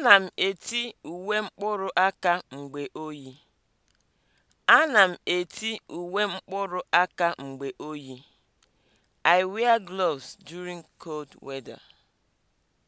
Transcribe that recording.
Ana m eti uwe mkpụrụ aka mgbe oyi. Ana m eti uwe mkpụrụ aka mgbe oyi. I wear gloves during cold weather.